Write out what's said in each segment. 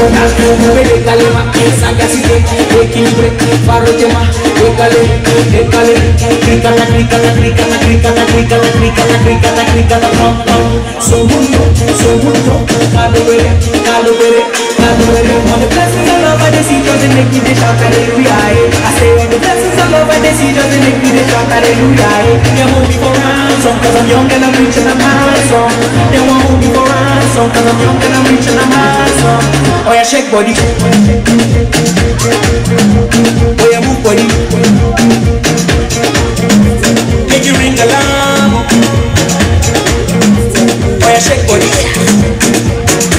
Mona, regale ma, sagacité, équilibré, parroche ma, décalé, décalé, cricata, cricata, cricata, cricata, cricata, cricata, cricata, cricata, pom, pom, segundo, segundo, calobere, calobere, the rhythm on the blessings of love I see doesn't make me shout hallelujah I say on the blessings of love I see doesn't make me shout hallelujah They won't be for ransom cause I'm young and I'm rich and I'm handsome They won't hold me for ransom cause I'm young and I'm rich and I'm handsome Oh yeah shake body Oh yeah move body Make you ring alarm Oh yeah shake body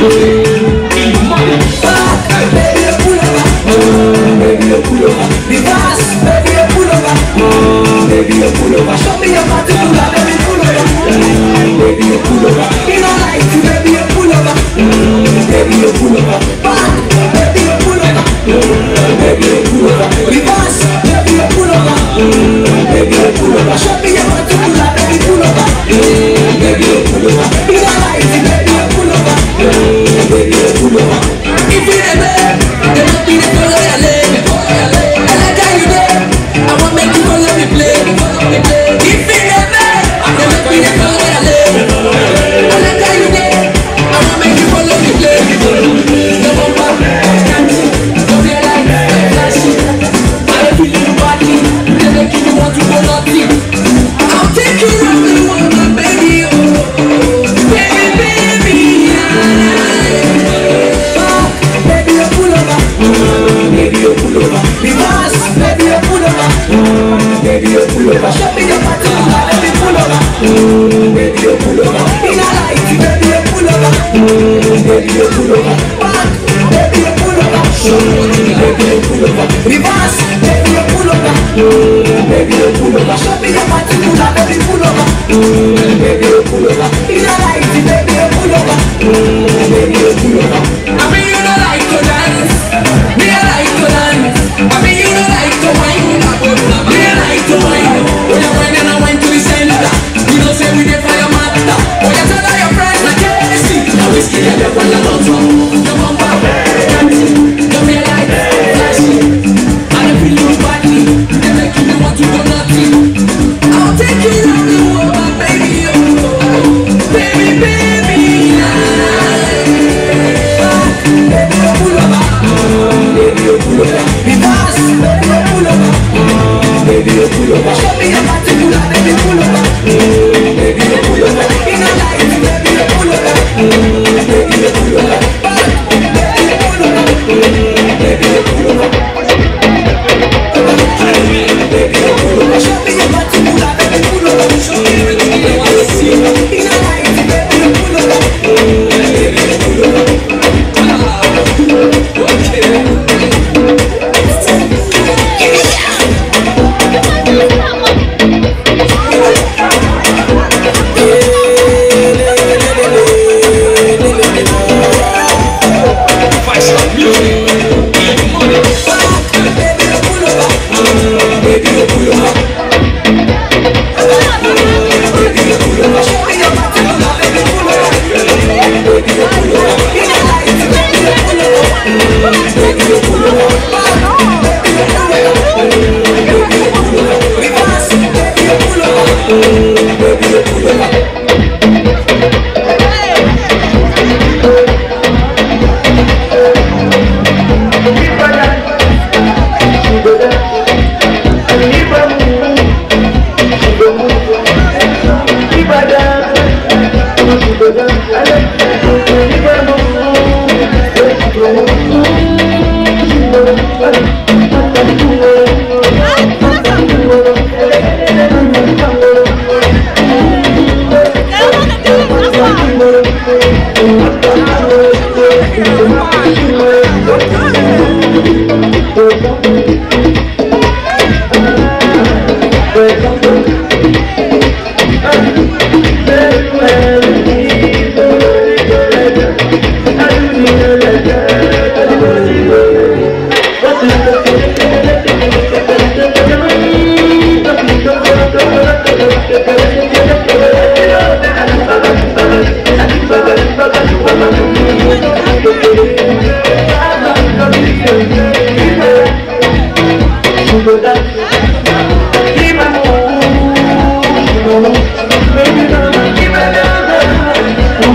Baby, you pull over. Show me your body, pull over. Baby, pull over. Baby, you pull over.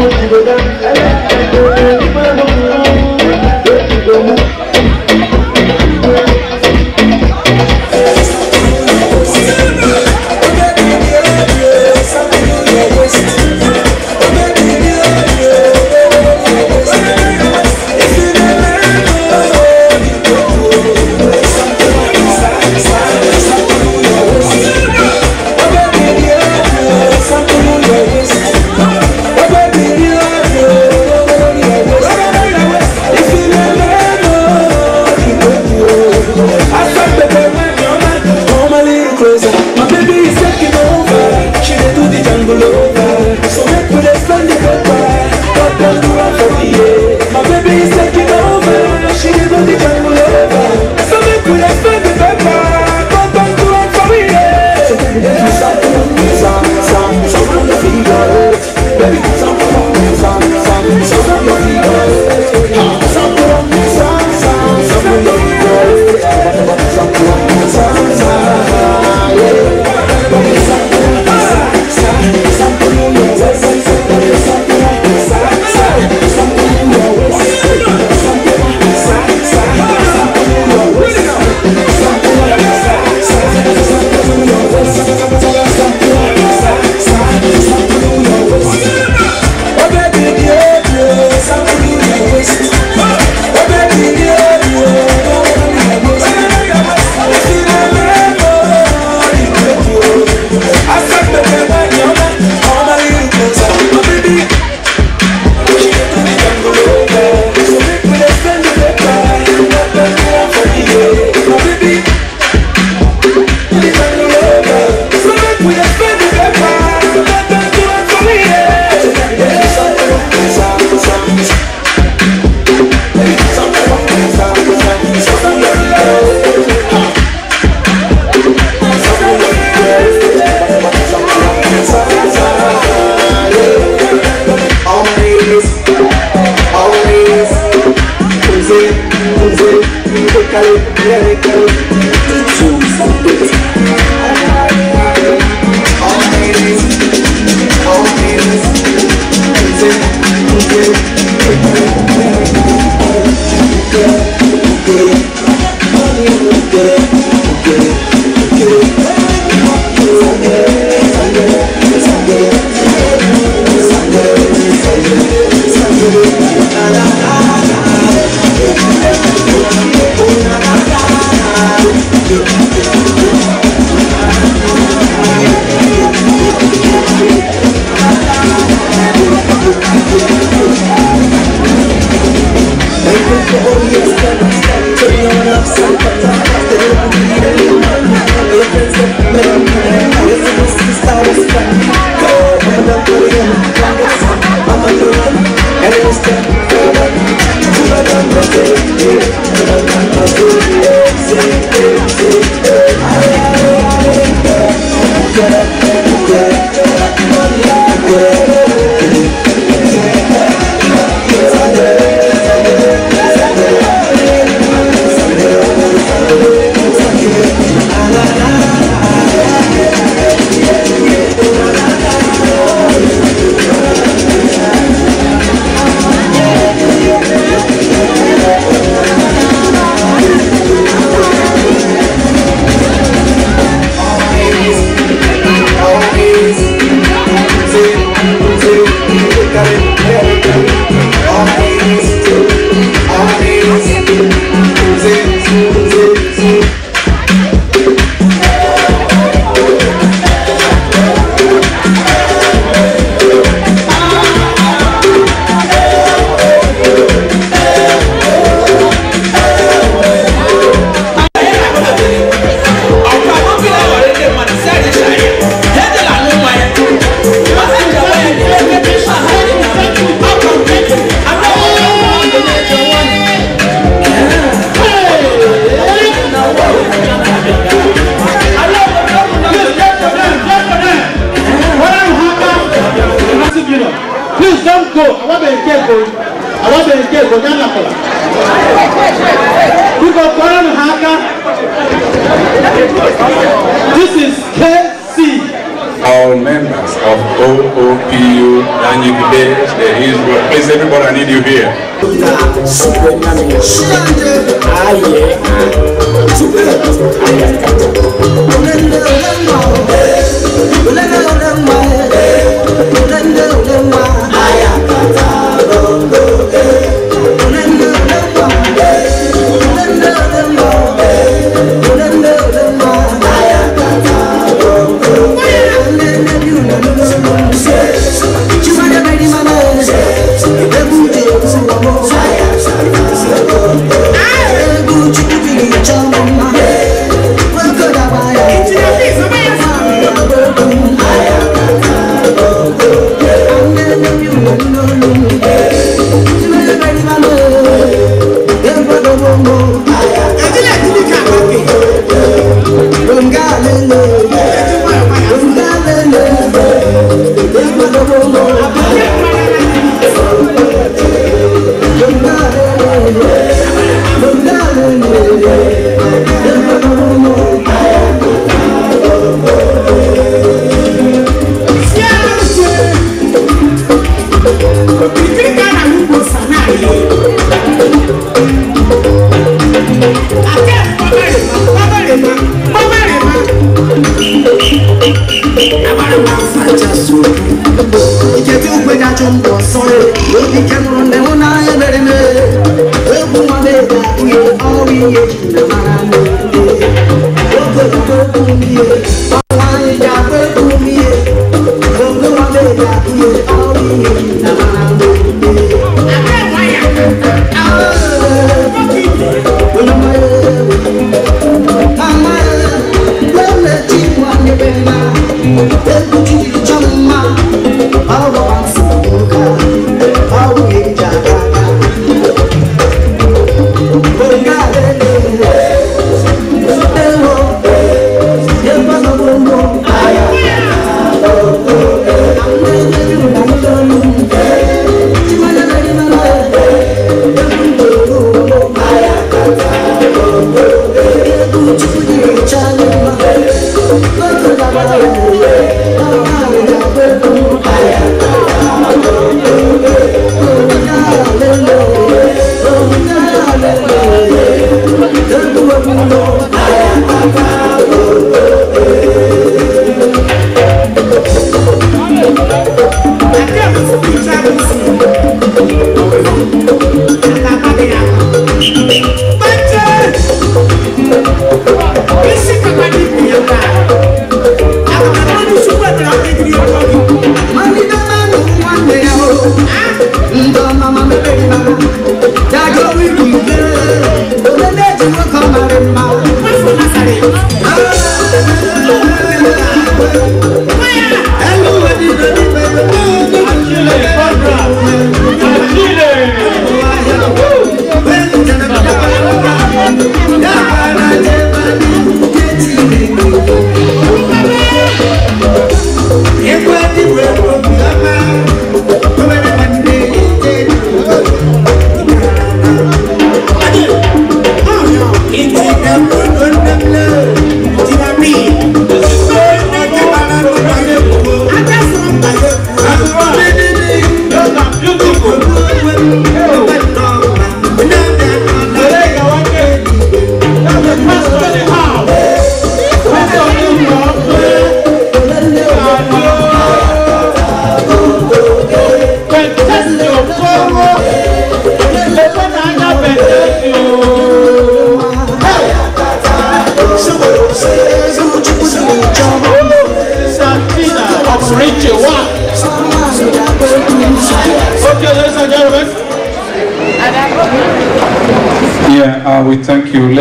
Thank you.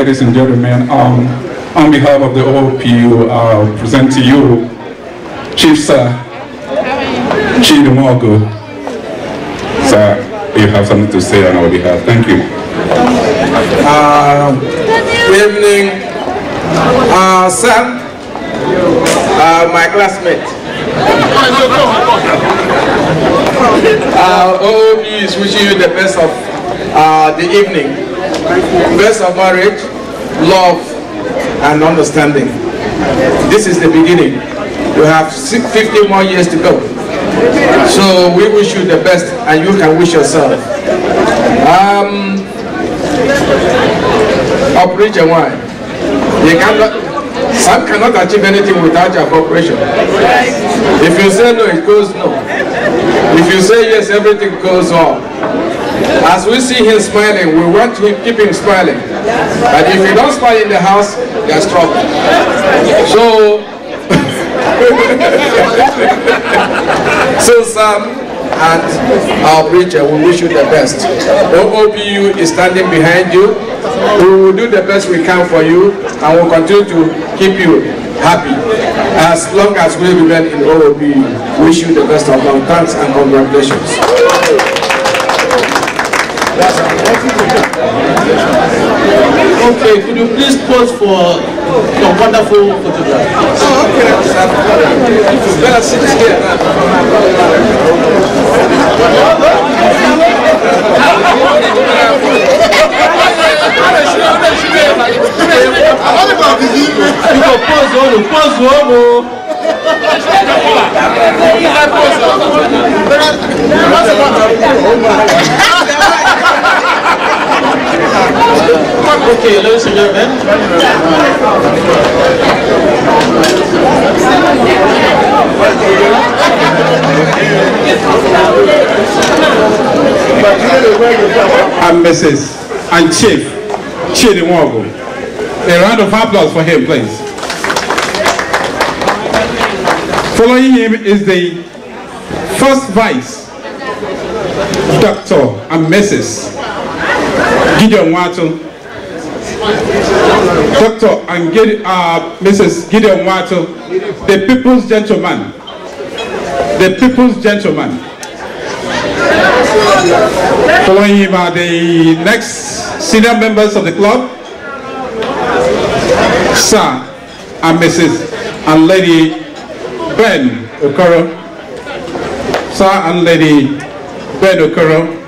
ladies and gentlemen. Um, on behalf of the OPU, uh, I'll present to you Chief Sir Chidumogo. Sir, you have something to say on our behalf. Thank you. Uh, good evening, uh, sir, uh, my classmate. Uh, OOP is wishing you the best of uh, the evening. Best of marriage, love, and understanding. This is the beginning. You have 50 more years to go. So we wish you the best, and you can wish yourself. Um, operation why? You cannot. Some cannot achieve anything without your cooperation. If you say no, it goes no. If you say yes, everything goes on. As we see him smiling, we want to keep him smiling. But if you don't smile in the house, there's trouble. So, so Sam and our preacher, we wish you the best. OOPU is standing behind you. We will do the best we can for you and we will continue to keep you happy as long as we remain in OOPU. Wish you the best of luck. Thanks and congratulations. Okay, could you please pose for your wonderful photograph? Oh, okay. Let us sit here now. You go pose on, pose on, oh. There are, there are And Mrs. and Chief Chidimwago. A round of applause for him, please. Following him is the first vice, Dr. and Mrs. Gideon Watson. Doctor and Gide, uh, Mrs. Gideon Wato, the people's gentleman, the people's gentleman. Following him are the next senior members of the club, Sir and Mrs. and Lady Ben Okoro, Sir and Lady Ben Okoro.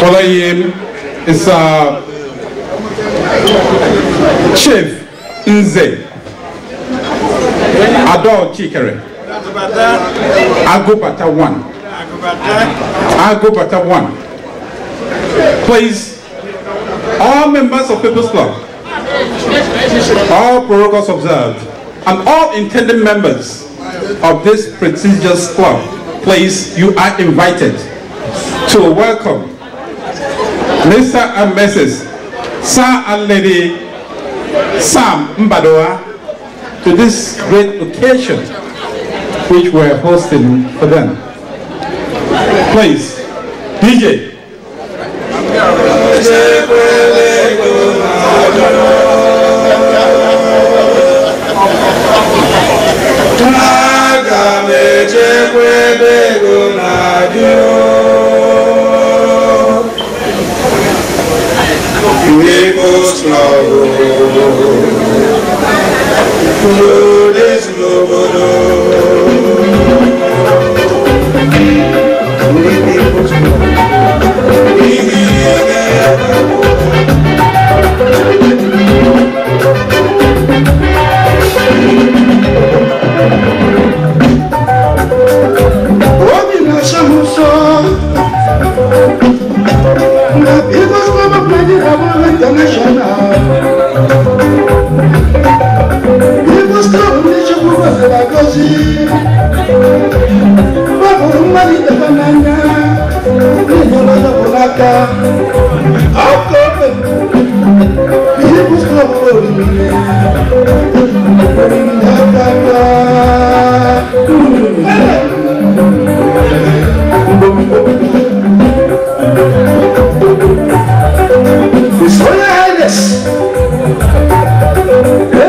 Kola Yem is uh, Chief Nze Adol Chikere Agobata 1 Agobata 1 Please, all members of People's Club, all protocols observed, and all intended members of this prestigious club, please, you are invited to welcome Mr. and Mrs. Sir and Lady Sam Mbadoa to this great occasion which we're hosting for them. Please, DJ. Nicholas Lavo. Lourdes Lobodo. Nicholas international. We must stop nation who was a bagosi. Babu Mali Tabanana. We not the Polaka. How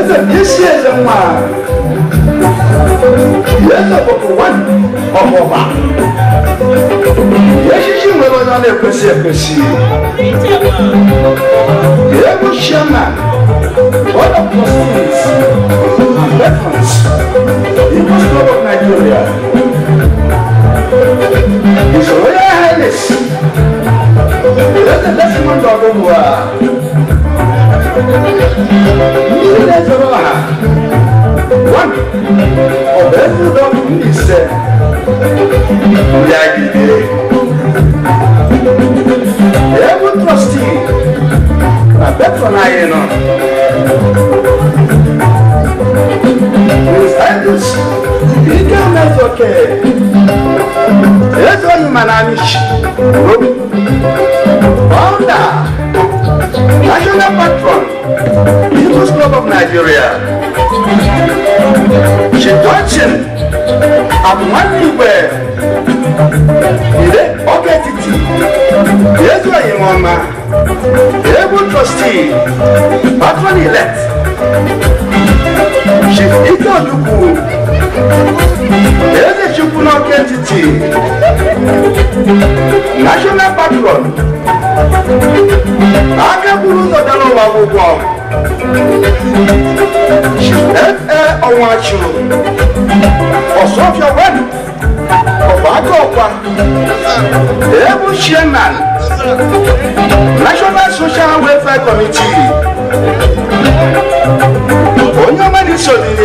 yɛsɛ yɛhyia yɛ mu a yɛsɛ kɔkɔ wɔn ɔbɔba yɛhyehye mu ɛbɛn na ɛkɛsi ɛkɛsi yɛbu hyia ma ɔda pɔsins bɛtons ibu sɔrɔ wɔ nigeria ìṣòro yɛ hɛnis yɛsɛ dɛsimɔndɔ gbogbo a ilé ìjọba wa wọn ọbẹ̀ ń lọ níṣẹ́ ìyàgìdè ewu trọstì abẹ́tọ̀ n'ayé nọ. Nsaidish, ike mezoke, ezo nyuma na anish, obi, ọnda. National patron, People's Club of Nigeria. She Johnson, Amanuwe, Ile Obetiti, Yezu Ayimoma, Able Trustee, Patron Elect. Chief Ike Oluku, Eze Chukwunoke Entity, National Patron, akẹ́kọ̀ọ́ buru náà wà gbogbo ọ̀hún ẹ ẹ ọ̀hún àṣìrò ọ̀sọ́fíà wẹ́nu ọ̀bàdàn Ebu èébú National Social Welfare Committee onye ọma ní sọdìní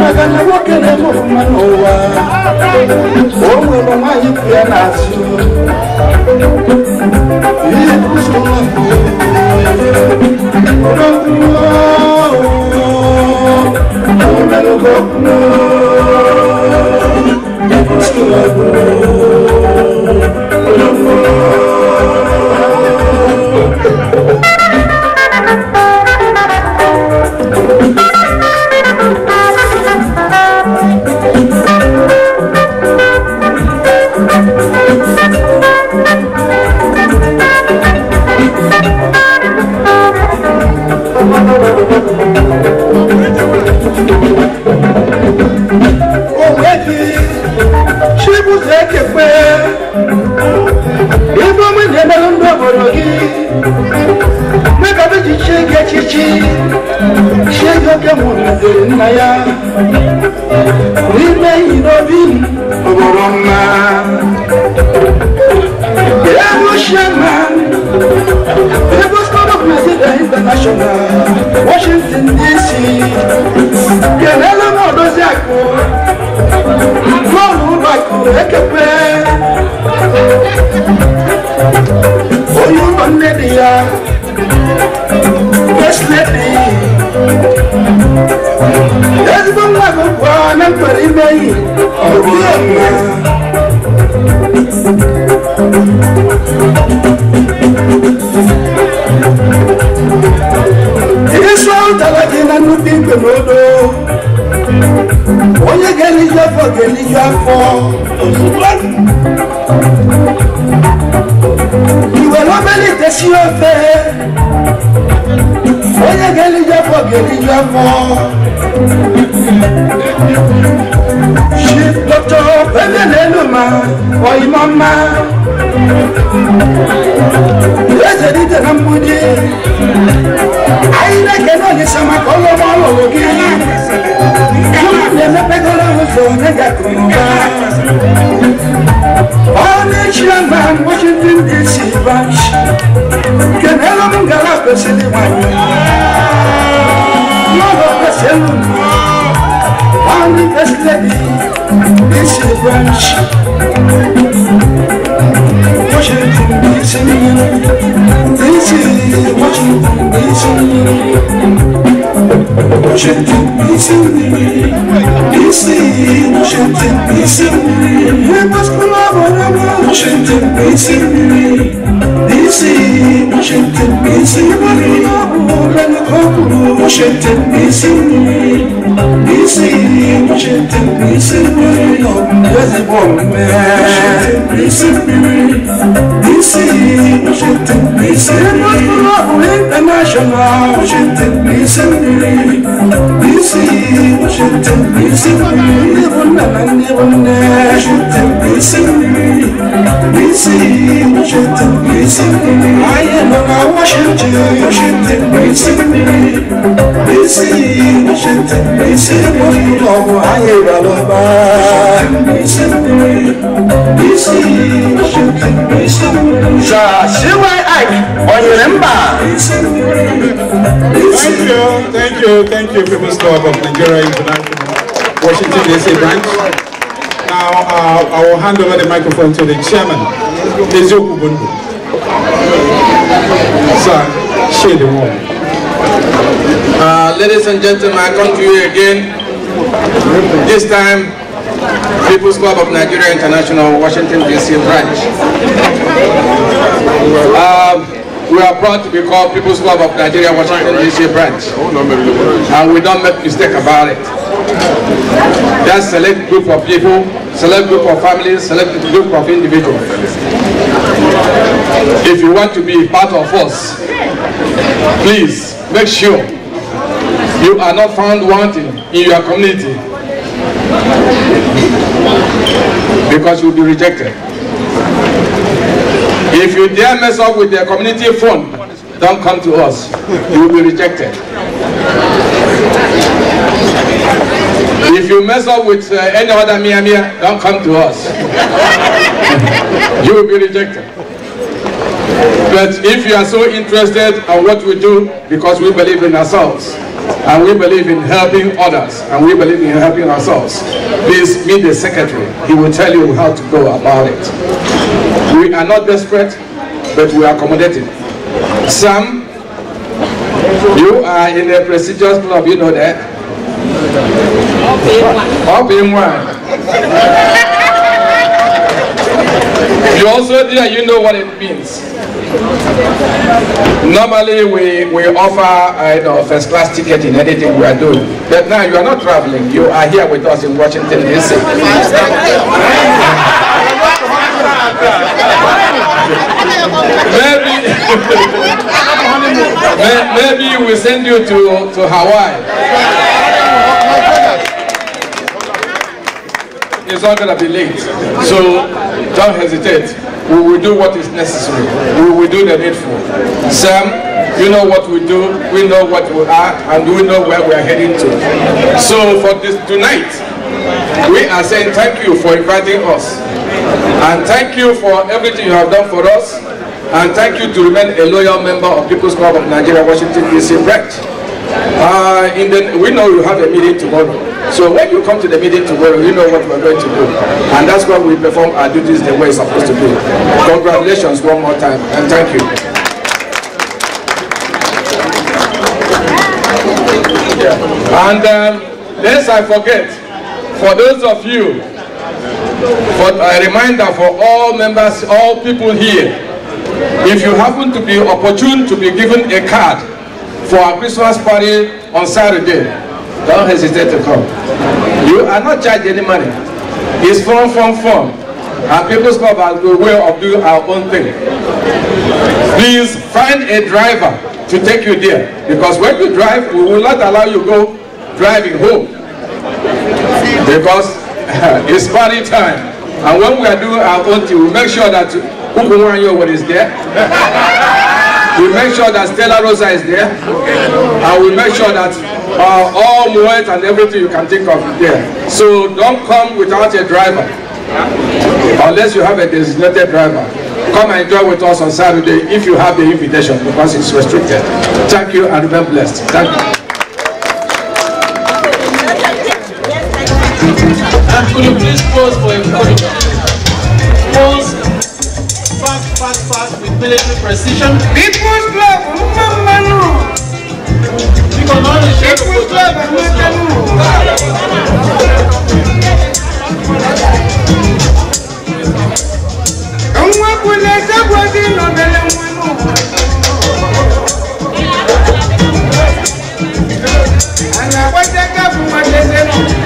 maka na nwoke na-eme ọfụma n'ụwa o nwere nwaanyị bụ ya n'azụ Yesu ahụtara gị na nnukwu igwe n'odo onye ga-eliju afọ ga-eliju afọ iwere obere ite si ofe onye ga-eliju afọ ga-eliju afọ Shitoto peleleluma oimama Yese dite nambudi Aile keno ni sama kolo molo wogi Yeme pegolo uzo nega kumba One chiyanga Washington DC branch. bash Kenelo mungala pesili wanyo Olówó pèsè lù mí. Wọ́n ní pèsè lẹ́bi bí ṣe branch. Wọ́n ṣe dùn bí Çektin bilsin Bilsin Çektin bilsin Hep aşkına varamam Çektin bilsin Bilsin Çektin bilsin Varına ben kabul Çektin bilsin Bilsin Çektin bilsin Varına yazık olmaya Çektin bilsin Bilsin Çektin bilsin Varına ben Thank you. bilsin Şiddet bilsin Ben de bunu ben de bunu Şiddet bilsin Bilsin Şiddet bilsin Ayağımın avaşıncı Şiddet bilsin Bilsin Şiddet bilsin Bunu ayıralım Bilsin Bilsin Şiddet bilsin Şaşıvay Ike on your number Thank you, thank you, thank you, people. Club of Nigeria International, Washington DC branch. Now uh, I will hand over the microphone to the chairman, Mizu Sir, share the word. Uh, ladies and gentlemen, I come to you again. This time, People's Club of Nigeria International, Washington DC branch. Uh, we are proud to be called People's Club of Nigeria Washington DC branch. Oh, And we don't make mistake about it. That select group of people, select group of families, select group of individuals. If you want to be part of us, please make sure you are not found wanting in your community because you'll be rejected. If you dare mess up with their community fund, don't come to us. You will be rejected. If you mess up with uh, any other Mia Mia, don't come to us. you will be rejected. But if you are so interested in what we do, because we believe in ourselves, and we believe in helping others, and we believe in helping ourselves, please meet the secretary. He will tell you how to go about it. We are not desperate, but we are accommodating. Sam, you are in a prestigious club, you know that. Up in one. you also there, you know what it means. Normally we, we offer you know, first class ticket in anything we are doing. But now you are not traveling, you are here with us in Washington DC. maybe, maybe we send you to, to Hawaii. It's not going to be late. So don't hesitate. We will do what is necessary. We will do the needful. Sam, you know what we do, we know what we are, and we know where we are heading to. So for this tonight, we are saying thank you for inviting us. And thank you for everything you have done for us. And thank you to remain a loyal member of People's Club of Nigeria, Washington, D.C. branch. Uh, in the, we know you have a meeting tomorrow. So when you come to the meeting tomorrow, you know what we're going to do. And that's why we perform our duties the way it's supposed to be. Congratulations one more time, and thank you. And um, lest I forget, for those of you but a reminder for all members, all people here, if you happen to be opportune to be given a card for our Christmas party on Saturday, don't hesitate to come. You are not charged any money. It's from, from, from. Our People's Club has a way of doing our own thing. Please find a driver to take you there. Because when you drive, we will not allow you go driving home. Because it's party time. And when we are doing our own thing, we make sure that Ukumanyo is there. we make sure that Stella Rosa is there. And we make sure that uh, all Moet and everything you can think of is there. So don't come without a driver. Unless you have a designated driver. Come and enjoy with us on Saturday if you have the invitation because it's restricted. Thank you and remain blessed. Thank you. Could you please pause for a moment? Pause. fast, fast, fast with military precision. People's club, Manu. You can only share People's club, Manu. Nwa kwule sebo di nọmele nwanu. Ana kwete kapu matete nọ.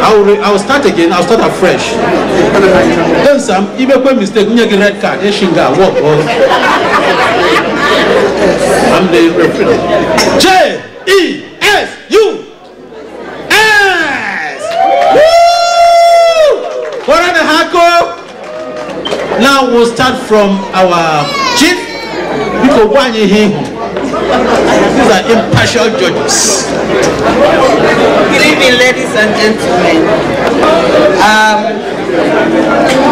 I'll, re- I'll start again. I'll start afresh. Then some, even when make mistake, you get red card. You shinga walk. I'm the referee. J E S U S. Woo! What are the hako? Now we'll start from our chief. go one here. These are impartial judges. Good evening, ladies and gentlemen. Um,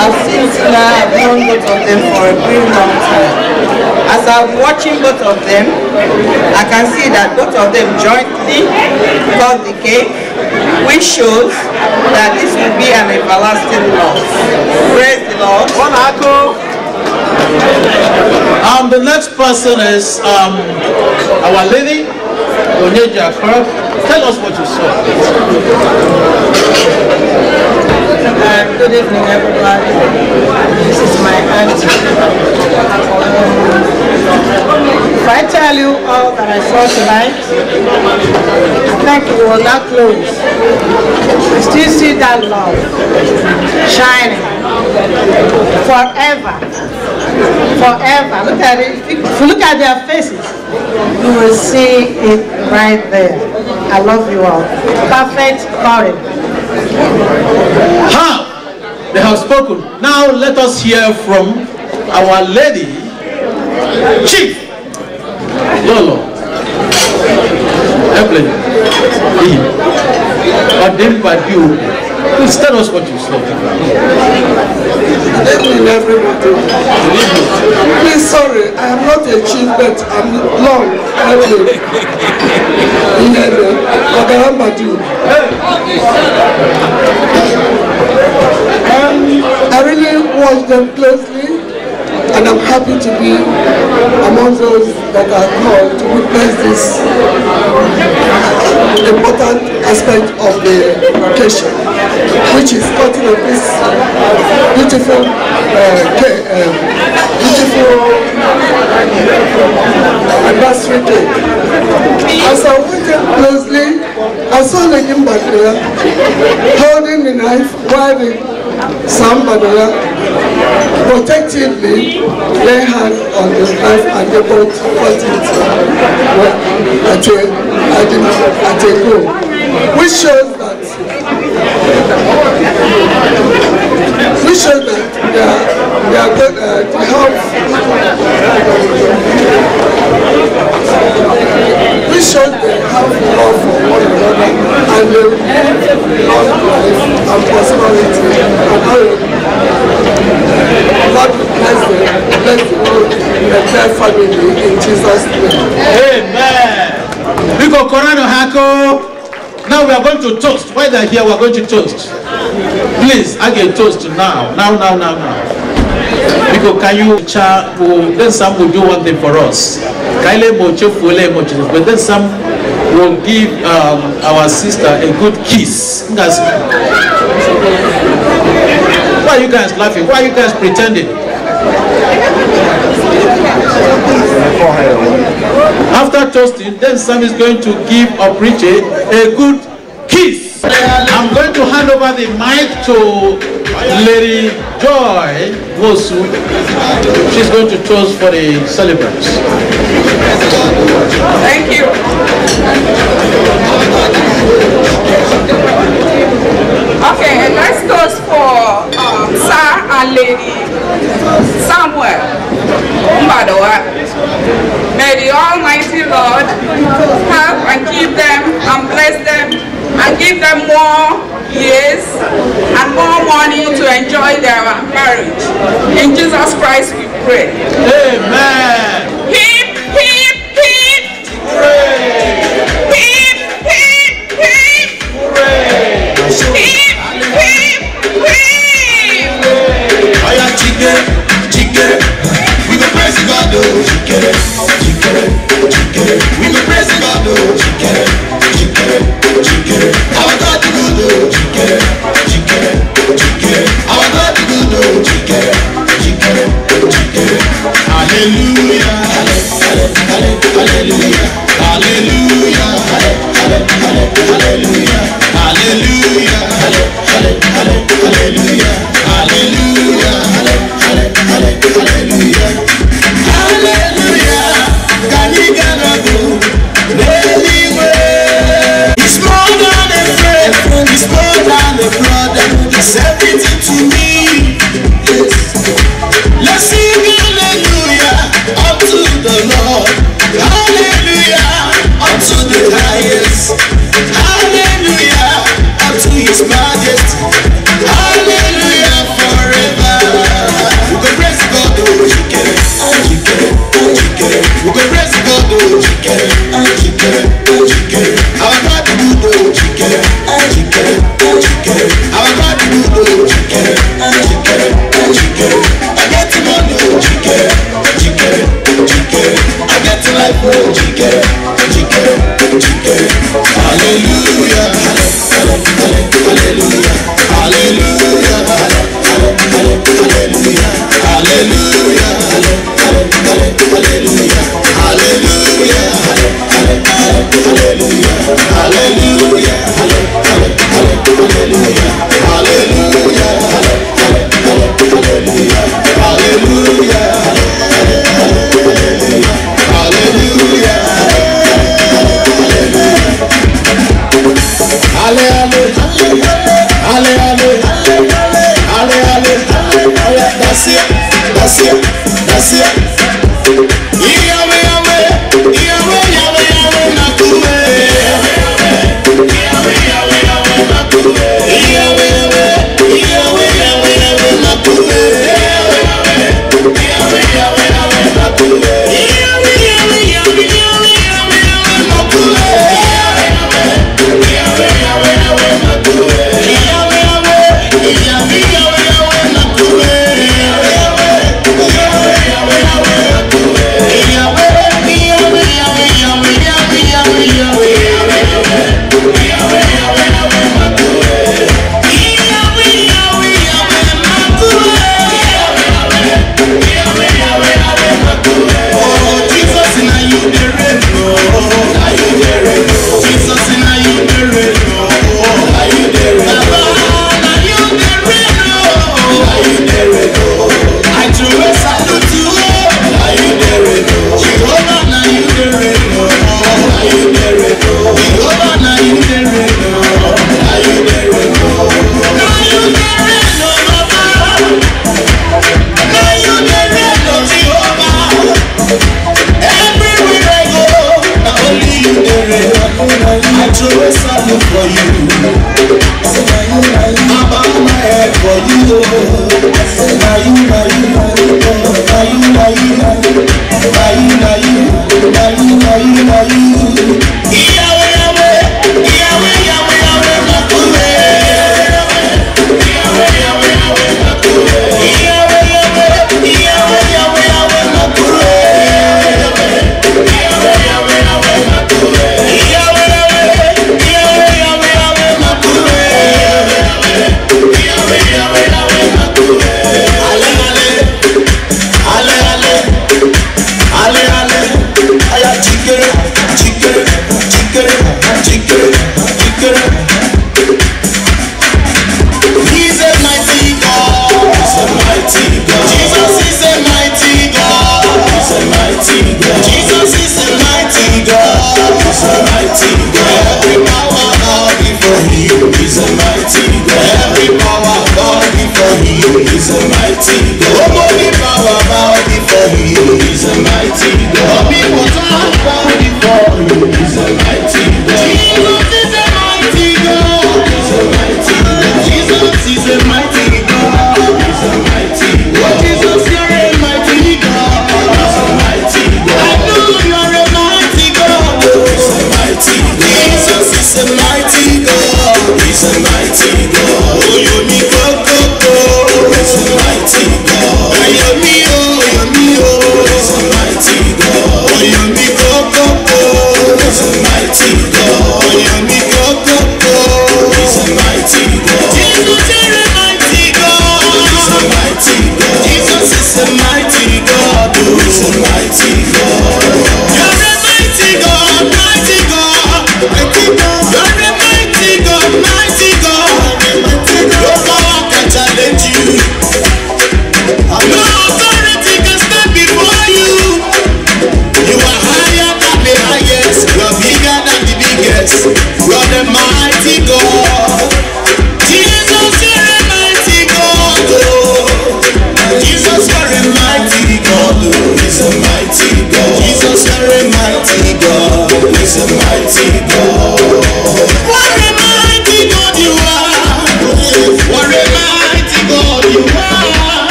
I've seen Tina, I've known both of them for a very long time. As I'm watching both of them, I can see that both of them jointly got the cake, which shows that this will be an everlasting loss. Praise the Lord. One oh. Um, the next person is um, Our Lady Onyeja Tell us what you saw. Uh, good evening, everybody. This is my auntie. Um, if I tell you all that I saw tonight, I think you will not close. I still see that love shining forever forever. Look at it. If you look at their faces, you will see it right there. I love you all. Perfect marriage. Ha! They have spoken. Now let us hear from our lady, Chief Lolo. Airplane. Ordained by you. Please tell us what you saw. Good evening, everybody. Please, sorry, I am not a chief, but I'm long. Anyway, Ogarambadu. Um, I really watch them closely, and I'm happy to be among those that are called to witness this important aspect of the vacation, which is cutting of this beautiful, uh, cake, uh, beautiful anniversary cake. As I waited closely, I saw the Imbatria holding the knife while the Sambadola, protectively lay hand on his life and able to put it well, at a, at a, at a goal, which shows that which shows that they are, they are good, uh, they have which shows they have love for one another and they love life and prosperity and glory. God bless them, bless the whole entire family in Jesus' name. Amen. Biko Korano Hako. Now we are going to toast. While they're here, we are going to toast. Please, I get toast now. Now, now, now, now. Biko, can you chat? then some will do one thing for us. Kaile mocho fule mocho. But then some will give um, our sister a good kiss. That's Why are you guys laughing? Why are you guys pretending? After toasting, then Sam is going to give a preacher a, a good kiss. I'm going to hand over the mic to Lady Joy Mosu. She's going to toast for the celebrants. Thank you. Okay, lady somewhere. May the Almighty Lord help and keep them and bless them and give them more years and more money to enjoy their marriage. In Jesus Christ we pray. Amen.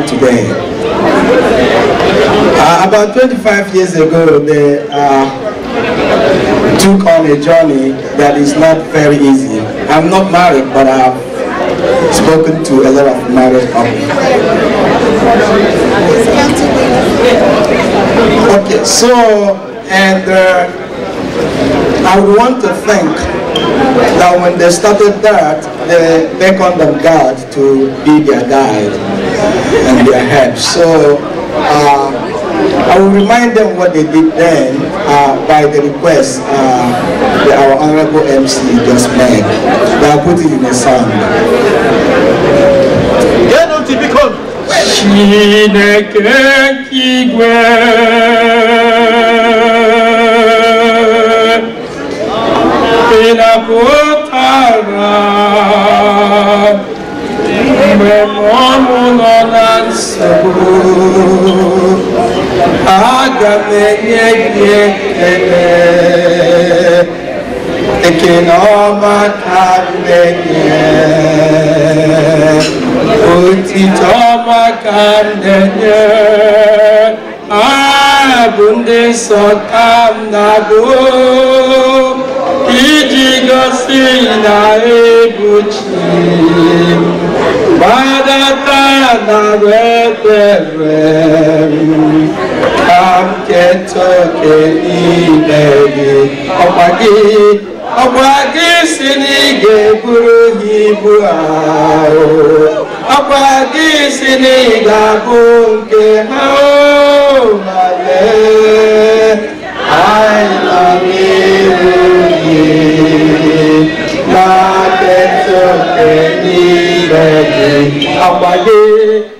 today. Uh, about 25 years ago, they uh, took on a journey that is not very easy. I'm not married, but I've spoken to a lot of married couples. Okay, so, and uh, I would want to thank that when they started that, they beckoned on God to be their guide their So uh, I will remind them what they did then uh, by the request uh, that our Honorable MC just made. They are putting in a song. Chineke igwe ìṣọ̀kan nàbó ìjìgọ́sí ìlà èbùjì bàdàtà nàwẹ́tẹ̀rẹ̀ kàmkẹ́tọ̀kẹ́ ilẹ̀ yìí ọ̀pàdé ọ̀pàdé sí ní gẹ̀ẹ́gbúrú ìbú àárọ̀ ọ̀pàdé sí ní ìgbàgbọ́ nke náà. àgbáyé.